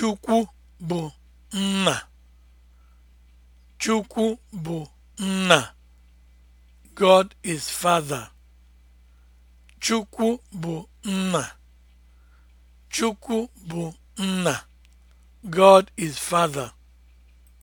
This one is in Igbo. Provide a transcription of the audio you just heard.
Chukwu bụ nna. Chukwu bụ nna. God is father. nna. God is father.